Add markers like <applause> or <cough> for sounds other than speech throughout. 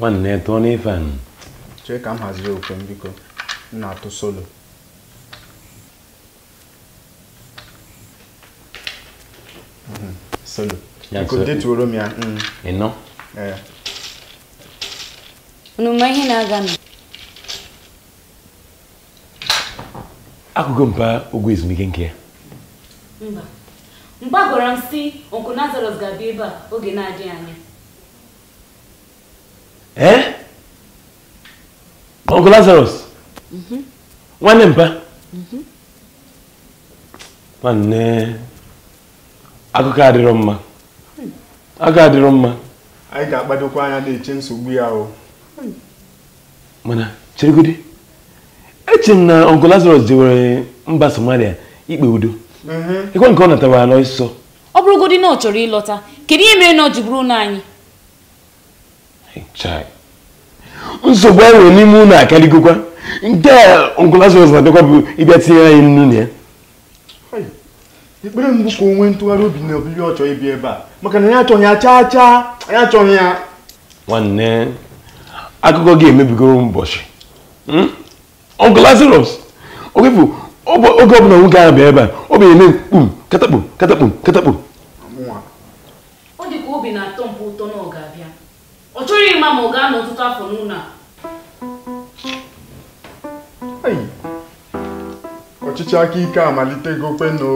nwanne tụọ n'ife anyị chee ka m haziri okwe m biko m na-atụ solo mhm, solo biko detuoro m ya mm. e. unu ma ihe na-aga nụ akụkụ mpa ogwe ezumike nke ya mba mgbe agwara m si onkụ Lazarus ga-abịa ebe a oge na-adịghị anya ee eh? ọgụ lazarus mm-hmm. nwanne mpa mm-hmm. nwanne akụkọ adịrọ mma agụ adịrọ mma anyị ga-akpadokwa anya na-eche nsogbu ya o mana cheregodi eche m na ọgụ lazarus jewere mba somalia ikpe udo ịkwa mm-hmm. nke ọ natara ala nsọ ọ na ọ chọrọ ịlọta kedu ihe mere na ọ ji bụrụ nsogbu anyị nwere n'ime ụlọ akarịgokwa nke ngụlasịs na-adịkwa bụ ịbịa tinyere anyị nnu na ya ekpere mbụ ka onwe ntụgharị obi na obibi ọ chọrọ ibi ebe a maka na ya achọghị ya chaa chaa anyị achọghị ya nwanne akụkọ gị emebigoro ụbọchị ọgụlasịrọs hmm? oge bụ oge ọbụla nwoke ahụ bịa ebe a ọ bụ eme mkpum katakpum katakpum katakpum ọ chọghị ịma ma ọ gaa n'ọtụtụ afọ n'ụlọ a ọchịchị aka ike amalitego kweno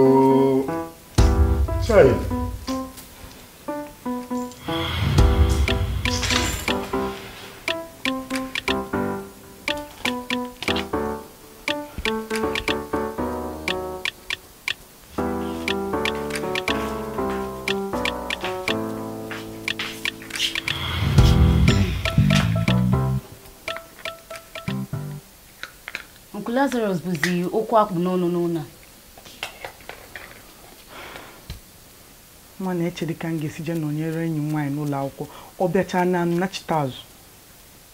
Jizọs bụzi okwu akpụ n'ọnụ n'ụlọ a nwa na-echere ka m ga-esi jee nọnyere enyi m nwaanyị n'ụlọ akwụkwọ ọ bịachaa na nnachite azụ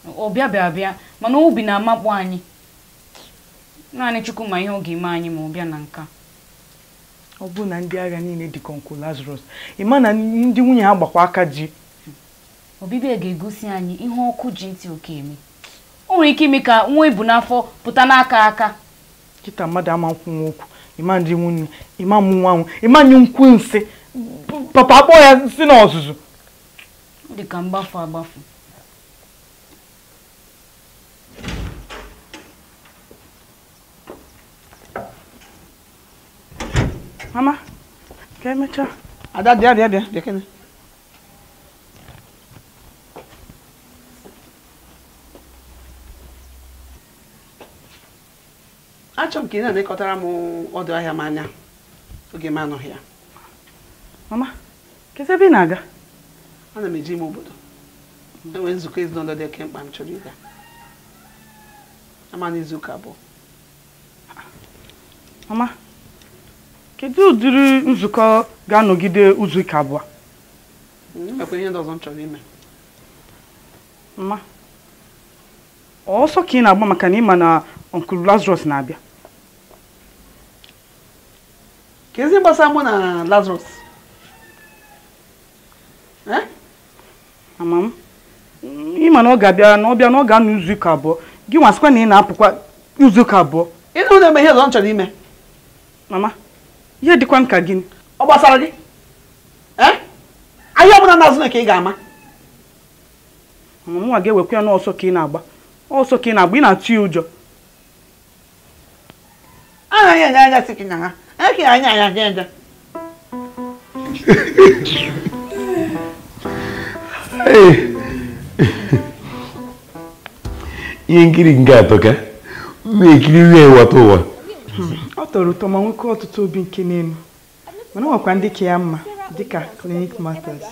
Ọ bịa bịa mana obi na-amakpụ anyị naanị Chukwu ma ihe ọ ga-eme anyị ma ọ bịa na nka ọ bụrụ na ndị agha niile dị ka nkụ Lazarus ị ma na ndị nwunye ha gbakwa aka ji ọbịbịa e ga-egosi anyị ihe ọkụ ji ntị oke eme o nwere ike ime ka nwa ebu n'afọ pụta n'aka aka kita mmadụ ama nkwụ nwa okwu ịma ndị nwunye ịma mụ nwa nwa ịma nye nkwụ nsị papa akpọ ya si na ọzụzụ dị ka mgbafu agbafu mama ka emechaa ada dị adị adị adị kene achọ m ka ị na anekọtara m ọdụ ahịa m anya oge m anọghị ya mama kedu ebe ị na-aga ana m eji ime obodo enwee nzukọ ezinụlọ dị oke mkpa m chọrọ ịga ama n'izu abụọ mama kedu ụdịrị nzukọ ga-anọgide izu ụka abụọ hmm, enwekwa ihe ndị ọzọ m chọrọ ime mma ọsọ ka ị na-agba maka na ị ma na ọnkụl lazarus na-abịa ka ezi gbasa mụ na Lazarus ama m ịma na ọ ga-abịa na ọ bịa na ọ ga-anọ izuụka abụọ gị nwasịkwa na ị na-apụkwa izuụka abụọ ịnụ na-eme ihe ọzọ m chọrọ ime mama ihe dịkwa m ka gịnị ọ gbasara gị ahịa ọbụla na-azụ na ka ị ga-ama mama nwa ga-ewekwa ya n'ọsọ ka ị na-agba ọsọ ka ị na-agba ị na-atụ ya ụjọ anaghị enye anya si gị na ha Aquí anya en la tienda. ihe nkiri nke ka ụmụ ekiri nri ewata ụwa ọ tọrọ ụtọ ma nwoke ọtụtụ obi nke n'elu mana ọ ndị ka ya mma dịka klinik matters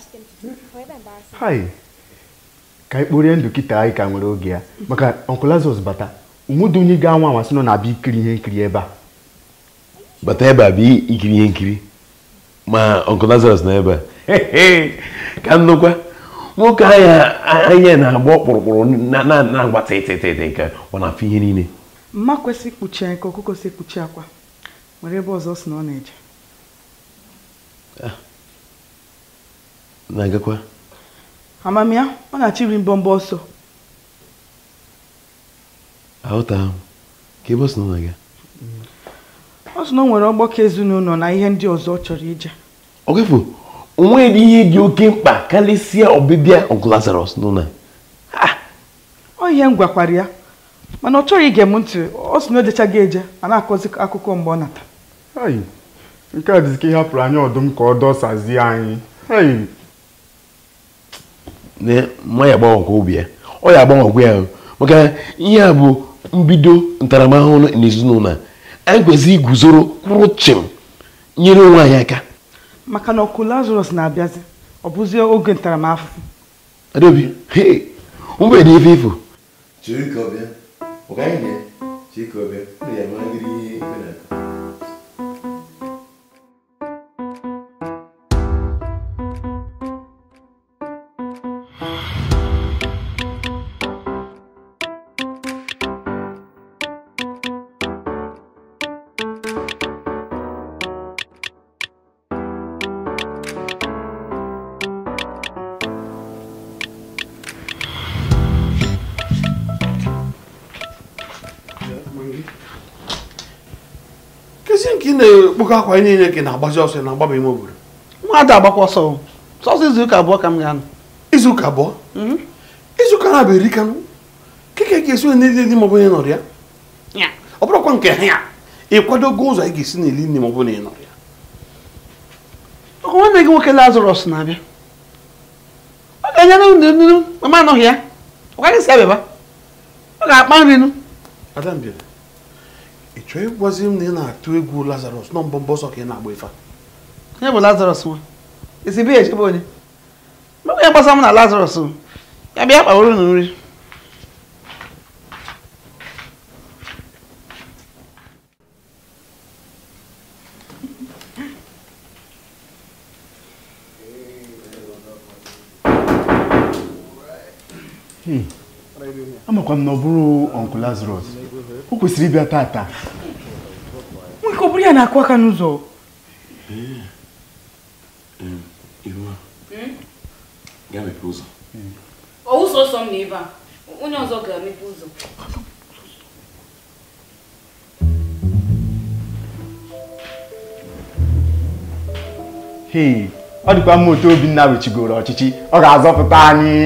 ka ikporie ndụ kịta anyị ka nwere oge ya maka ọnkụl bata onwedị onye ga-anwa anwa nọ na-abịa ikiri ihe nkiri ebe a bata ebe a bụ ikiri ihe nkiri ma ọnkụ Lazarus na ebe a ka nnukwu nwoke anya anya na-agba ọkpụrụkpụrụ na-agba tịtịtịtị nke ọ na-afụ ihe niile mma kwesị ikpuchi anya ka ọkụkọ si ekpuchi akwa nwere ebe ọzọ si na ọ na-eje ah. na-agakwa amamiya ọ na-achọ iri mbọmbọ ọsọ aghọta ahụ ka ebe ọ si na ọ na-aga ọ sị na ọ nwere ọgbakọ ezinụlọ na ihe ndị ọzọ ọ chọrọ ije ogefu onweghị ihe dị oke mkpa karịsịa ọbịbịa ọgụ Lazarus n'ụlọ ọ m gwakwara ya mana ọ chọghị ige m ntị ọ sị na o eje ma na-akọzi akụkọ mgbe ọ nata nke a dịzika ihe hapụrụ anya ọdụm ka ọ dọsazie anyị nwa ya obi ya ọ ya agbanwekwa ya maka ihe a bụ mbido ntaramahụhụ n'ezinụlọ egwezi iguzoro kwụrụ chịm nyere onwe anyị aka maka na ọkụ lazarus na-abịazi ọ bụzie oge ntaramahụhụ adobi mgbe na ife ifo chiri ka ọbịa ọgaghị na chiri ka ọbịa ọ ya mara gịrị ihe ikpe na nke ị na-ekpokọ akwa anyị enye ka ị na-agbazi ọsọ na-agbaba ime obodo nwa ada agbakwa ọsọ sọsọ izuụka abụọ ka m ga-anọ izuụka abụọ izuụka na-abụ eri kanụ keke ga-esi na n'ili dị maọbụ onye nọrọ ya ọ bụrụkwa nke ha ya ịkwadogo ụzọ anyị ga-esi na-eli n'ili nne maọbụ na ị nọrọ ya ọkụ nwanne gị nwoke lazarus na-abịa ọ ga-enyere unu nnu mama anọghị ya ọ gaghị si abịaba ọ ga-akpa nri nu ị chọọ ịgwazi m na ị na-atụ egwu lazarus nọ mbọ mbọ sọ ka ị na-agba ife ya bụ lazarus nwa ezigbo ya echebe onye mgbe ya gbasa m na lazarus ya bịa kpaworo na nri hmm. amakwa m na ọ bụrụ ọnkụ lazarus o kwesịrị ịbịa taata nwoke ọ bụrụ ya na-akụ aka n'ụzọ ọ dịkwa mma otu Obinna wechigoro ọchịchị ọ ga-azọpụta anyị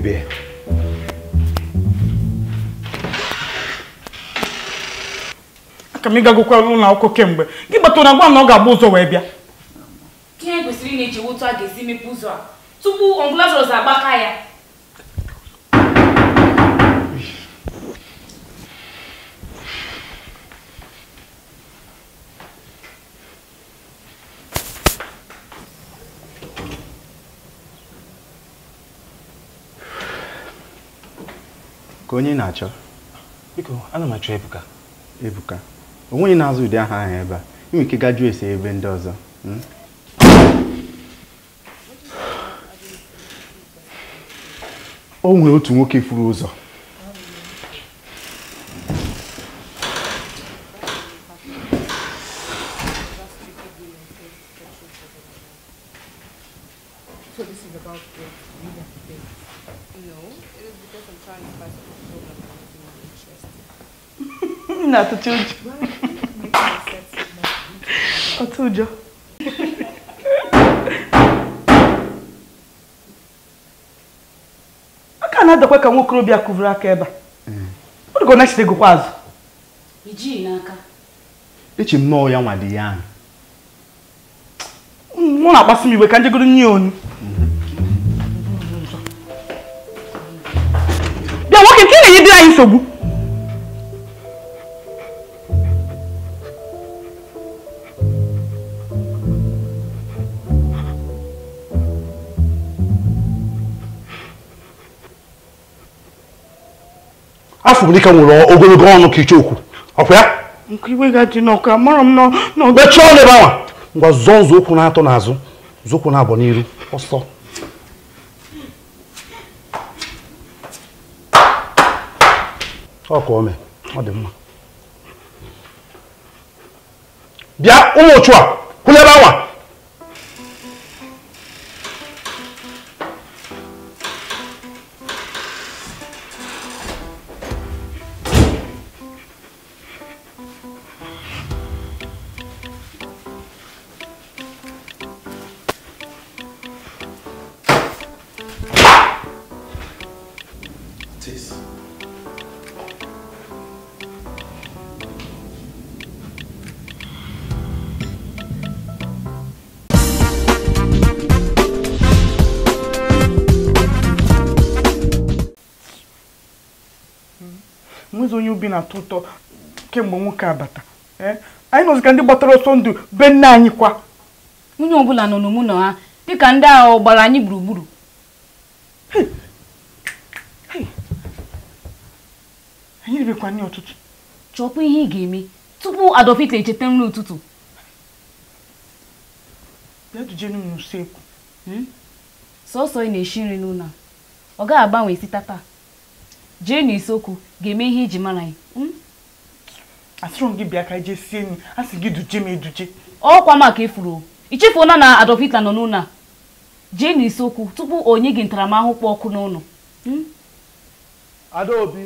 bebê. aka m ịgagokwa kemgbe gị gbata na gwa na ọ ga-agba ụzọ wee bịa ihe kwesịrị ị na-eji wụtụ a ga-esi mepe ụzọ a tupu ọbụla zọrọ agbaka ya ka onye na-achọ biko ana m achọ Ebuka Ebuka onwe ya na-azụ ụdị aha ahụ ebe a inwe ike gajuo esi ebe ndị ọzọ hmm? o nwere otu nwoke furu ụzọ àtúntí òjò ọtí òjò. aka na-adakwa ka nwa okorobịa kụvuru aka ebe a ọ dịka ọ na-echite gụkwa azụ ijii n'aka echi m nọọ ya nwa dị ya ahụ mụ na-akpasị m iwe ka njegoro nye onu bịa nwoke nke na-enye afọ m dịka nwere ogologo ọnụ ka ichekwu ọkwa ya mechie ọnụ ebe ahụ ngwa zọọ nzọụkwụ na-atọ n'azụ nzọụkwụ na-abọ n'iru ọsọ ọkụ ome ọ dị mma bịa ụmụ ochu a kwụlebe awa onwezi onye ubi na-atọ ụtọ kemgbe nwoke abata eh? anyị nọzika ndị gbatara ọsọ ndụ be nne anyị kwa nwunye ọbụla nọ n'ụmụnọ ha dịka ndị agha gbara anyị gburugburu anyị ribekwa nne ụtụtụ chọpụ ihe ị ga-eme tupu adọpita echeta nri ụtụtụ bịa juje sọsọ hmm? ị na-esi nri n'ụlọ ọ gaghị agbanwe site taa. jee n'isiokwu ga-eme ihe iji mara anyị hmm? asịrọ gị bịa ka jee sie nri a sị gị duje m eduje ọkwa maka ifuru ichefuona na Adolf Hitler nọ n'ụlọ a jee n'isiokwu okwu tupu onye gị ntaramahụhụ kpọ ọkụ n'ụlọ hmm? Adaobi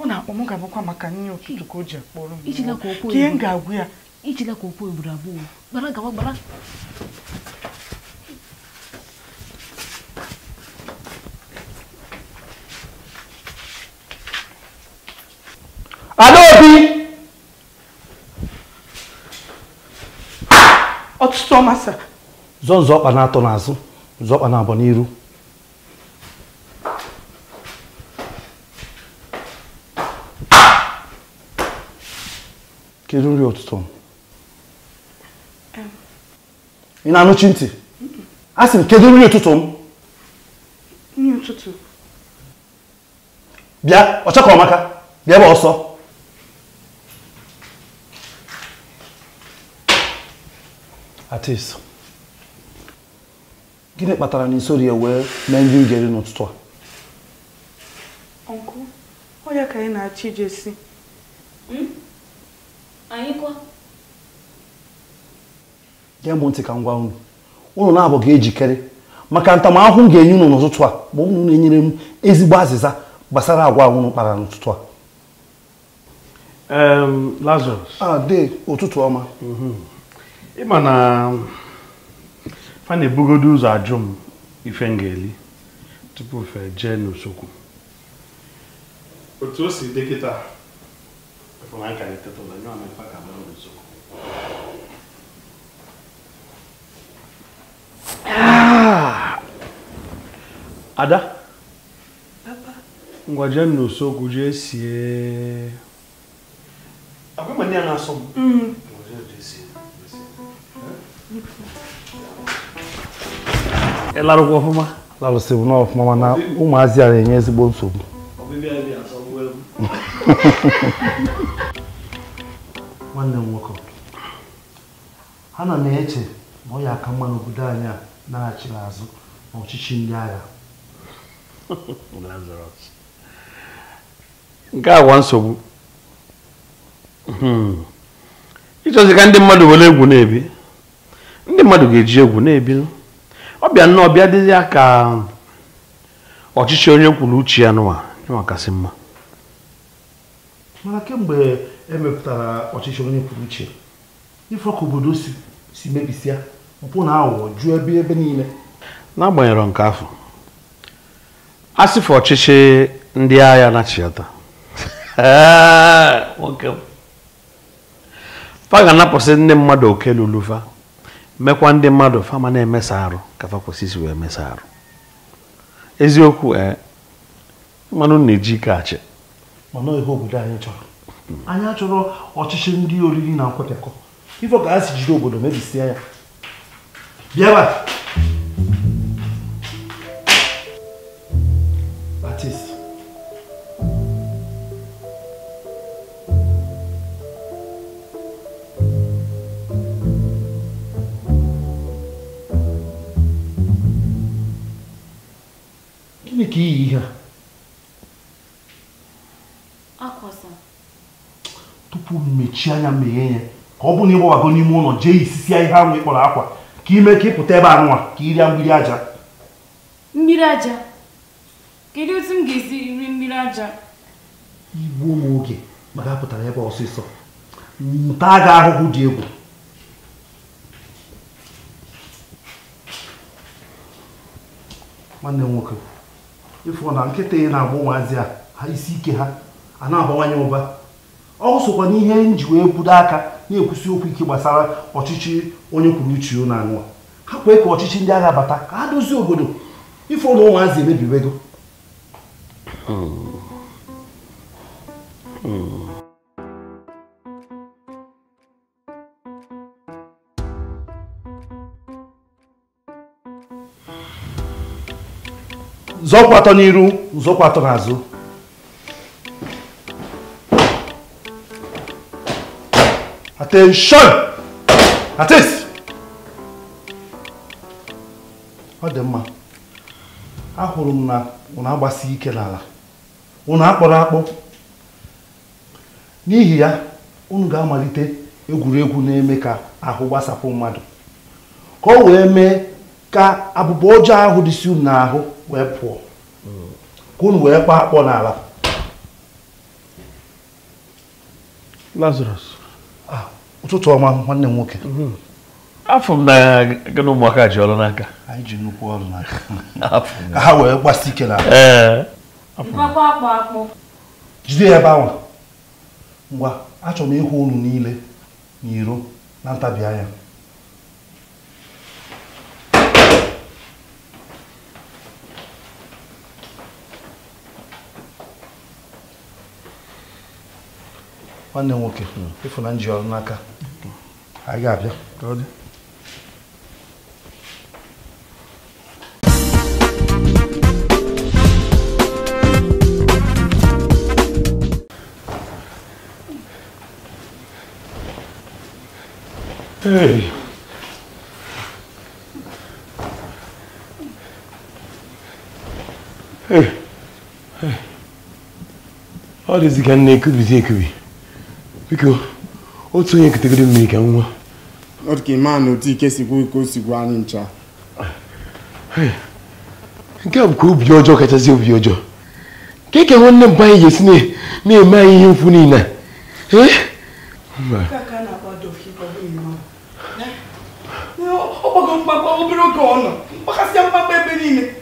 ọ na-akpọ m ga-abụkwa maka nri ụtụtụ ka o ji akpọrọ m ihe m ga-agwụ ya ijila ka okwu egburu abụọ gbara gawa gbara Alo Obi! Ọtụtụ ọmasị. Zọ nzọkpa na-atọ n'azụ, nzọkpa na-abọ n'iru. Kedu nri ụtụtụ? Ị na-anụchi ntị? A sị m kedu nri ụtụtụ m? Nri ụtụtụ. Bịa, ọchakọ ọmaka, bịa ebe ọsọ. Atis gịnị kpatara na isori ya wee mee nri ugeri n'ụtụtụ a ọkụ onye ka anyị na-achọ ije si gee hmm? m ntị ka ngwa gwa unu unu na-abụ ga-ejikere maka ntamahụhụ m ga-enye unu n'ụtụtụ a bụ unu na-enyere m ezigbo azịza gbasara agwa unu kpara n'ụtụtụ a Lazarus. a ah, ụtụtụ ọma mhm. ịma na fa ebugodo ụzọ ajụ m ife m ga-eli tupu fe jee n'usokwu otu o si dị kịta ah! ada ngwa jee n'usokwu jee sie na-asọ m mm. ịlarụkwa ọfụma larụsịbụ n'ọfụma mana ụmụazị a na-enye ezigbo nsogbu <laughs> nwanne m nwoke ha na m eche ma ọ ya aka mma n'obodo anyị a na-achị azụ n'ọchịchị ndị agha <laughs> nke agwa nsogbu hmm. ịchọzi ka ndị mmadụ were egwu na-ebi ndị mmadụ ga-eji egwu na-ebi ọ bịa nnọọ bịa dịzi ya ka ọchịchị onye kwuru uche ya nụwa nwa kasị mma mana kemgbe emepụtara ọchịchị onye kwuru uche ife obodo si mebisịa mpụ na aghụghọ jụọ ebe ebe niile n'agbanyeghị nke afọ asịfụ ọchịchị ndị agha na-achịata nwoke anapụsị ndị mmadụ oke lulufa mekwa ndị mmadụ fama na-emesa arụ ka fakwasisi wee mesa arụ eziokwu ee mmanụ na-eji ike achị mana ihe obodo anyị chọrọ anyị achọrọ ọchịchị ndị oriri na nkwekọ ife ka a si jiri obodo mebisie ya bịaba dia. Akwa sa? Tupu mechie anya mee ya ka ọ bụrụ na ịgbawago n'ime ụlọ jee isisi ihe ahụ ị kpọrọ akwa ka ime ka ịpụta ebe anụwa ka irie mmiri aja. Mmiri aja? Kedu otu m ga-esi iri mmiri aja? Igbuo m oge maka apụtara ebe ọsịsọ. Nta ga ahụhụ dị egwu. nwanne m aqui. ịfụ na nkịta ị na-agbụ nwazi a ha isi ike ha a na-abawanye ụba ọ sokwa n'ihe nji wee budo aka na-ekwusi okwu ike gbasara ọchịchị onye kwuru uche na anụwa ha kwee ka ọchịchị ndị agha bata ka ha dozie obodo ifo na ụmụazị emebiwego hmm. hmm. zọkwa n'iru zọkwa n'azụ attention atis ọ dị mma ahụrụ m na na agbasi ike n'ala ụnụ akpọrọ akpọ n'ihi ya unu ga-amalite egwuregwu na-eme ka ahụ gbasapụ mmadụ ka o wee mee ka abụba ọjọọ ahụ dịsi unu n'ahụ wee pụọ ka unu wee kpaa akpọ n'ala Lazarus ụtụtụ ọma nwanne m nwoke afọ m na gị na ụmụaka ji ọrụ n'aka anyị ji nnukwu ọrụ n'aka ka ha wee gbasi ike n'ala jide ya ebe ahụ ngwa achọrọ m ịhụ unu niile n'iro na ntabi anya nwanne m nwoke Ifunanya ji ọrụ n'aka anyị ga-abịa ka ọ dị Hey. Hey. Hey. Hadi zikenle biko otu onye kitegide mmiri ka nwa ọ ka a otu ike sikwu ike sikwu anyị ncha nke a ka obi ọjọọ kachasị obi ọjọọ ka ka nwanne mba anyị na-eme anyị ihe mfu niile ọgbago e, obere niile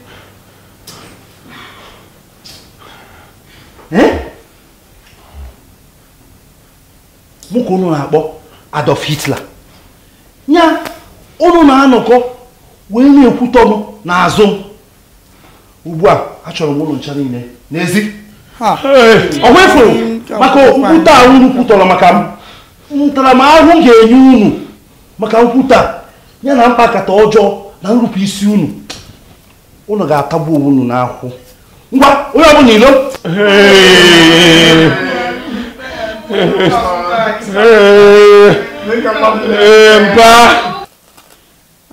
mụ ka unu na-akpọ Adolf Hitler ya unu na-anọkọ wee na-ekwutọ m n'azụ ugbu a achọrọ m ụlọ ncha niile n'ezi ọ maka nkwute a unu kwutọrọ maka m ntaramahụhụ ga-enye unu maka nkwute a ya na mkpakata ọjọọ na nrụpụ isi unu ụnụ ga-atagbu onwe unu n'ahụ ngwa onye ọbụla ilo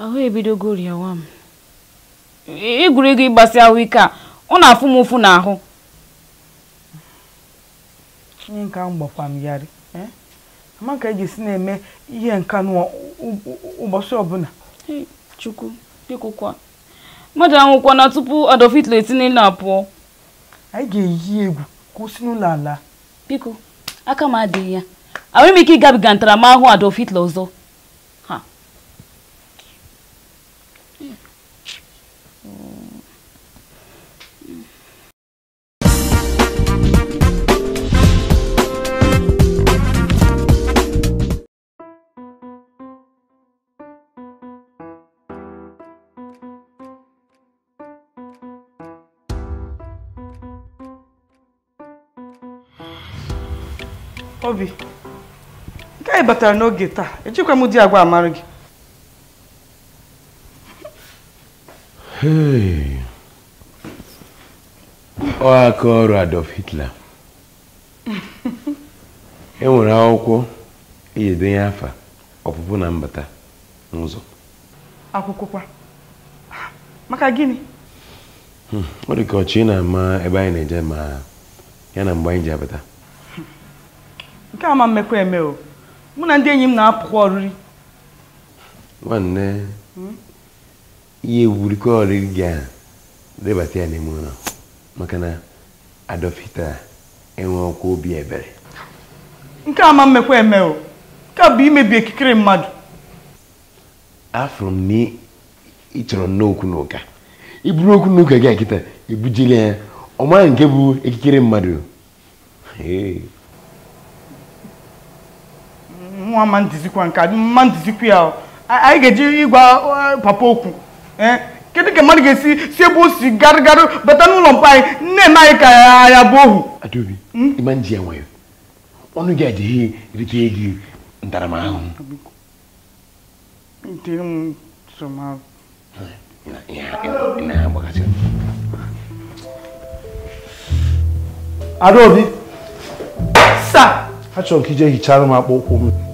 ahụ ebidogo rịawa m egwuregwu e ịgbasi ahụike a ọ na-afụ m ụfụ n'ahụ ihe nka mgbakwa m yarị e? amaka eji si na-eme ihe nka ụbọchị ọbụla chukwu bikokwa mmadụ anwụkwana tupu adọfitla etinye na pụọ anyị ga-eyi egwu kwụsị n'ụlọ ala biko aka m adịghị ya ahụ ime ike ịgabiga ntaramahụhụ ada ofitla ọzọ Obi. e batara n'oge taa ejikwa m di agwa amara gị ọ aka ọrụ Adolf Hitler enwere akwụkwọ eji edenye afa ọpụpụ na mbata n'ụzọ kwa: maka gịnị hmm, ọ dị ka ọchị na-ama ebe anyị na-eje ma ya na mgbe anyị ji abata nke a ma mmekọ eme o mụ na ndị enyi m na-apụkwa ọrịrị nwanne hmm? ihe egwurikọ ọrịrị gị a debata ya n'ime ụlọ maka na adọfita enwe ọkwa obi ebere nke ama ma mmekwa eme o nke bụ imebi ekikere mmadụ afụrụ m na ị chọrọ n'okwu n'ụka iburu okwu n'ụka gị akịta ebujela ya ọ maghị nke bụ ekikere mmadụ nwa ma ntizikwa nke ma ntizikwa ya anyị ga-eji ịgwa papa okwu e, kedu ka mmadụ ga-esi si ebe o si garịgarị bata n'ụlọ mkpa anyị nne na anyị ka ya bụ ohu adaobi hmm? ịma nji ya nwayọ ọnụ gị adịghị erite gị ntaramahụhụ adaobi achọrọ m ka ije hichara m akpụkpọ ụkwụ m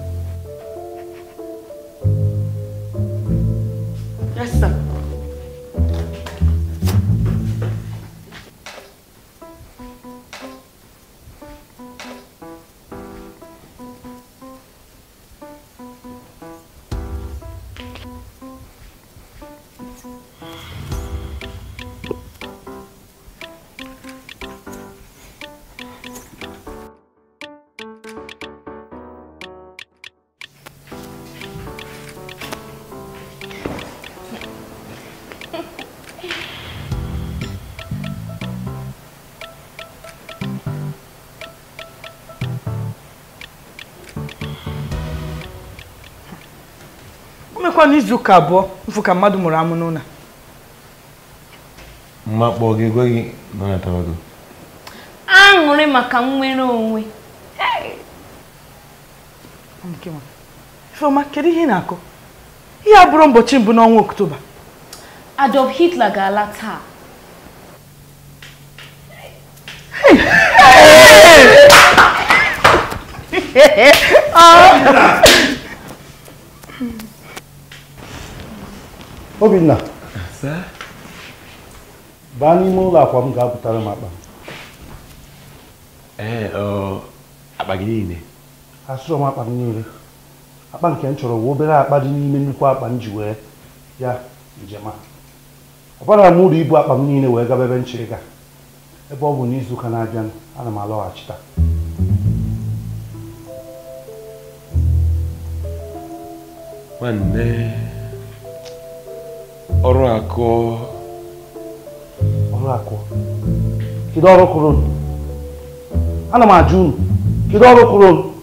emekwa n'izu ụka abụọ mfụ ka mmadụ mụrụ amụ n'ụlọ mmakpọ gị ekweghị nọnatawa A aṅụrị maka nnwere onwe Ifeoma kedu ihe ị na-akụ ihe a bụrụ ụbọchị mbụ n'ọnwa ọktoba Adolf Hitler ga-ala taa Obinna baa n'ime ụlọ akwa m ga-apụtara m akpa akpa gị niile asụrụ m akpa m niile akpa nke m chọrọ obere akpa dị n'ime nnukwu akpa m ji wee ya njem a ọbara m uru ibu akpa m niile wee gaba ebe nchịrịga ebe ọ bụ n'izuụka na-abịa ana m alọghachita nwanne ọrụ akụ ọrụ akụ kedu ọrụ kụrụ ana m ajụ unu kedu ọrụ kụrụ unu